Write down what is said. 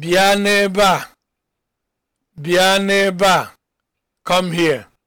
bịa n'ebe a bịa n'ebe a come here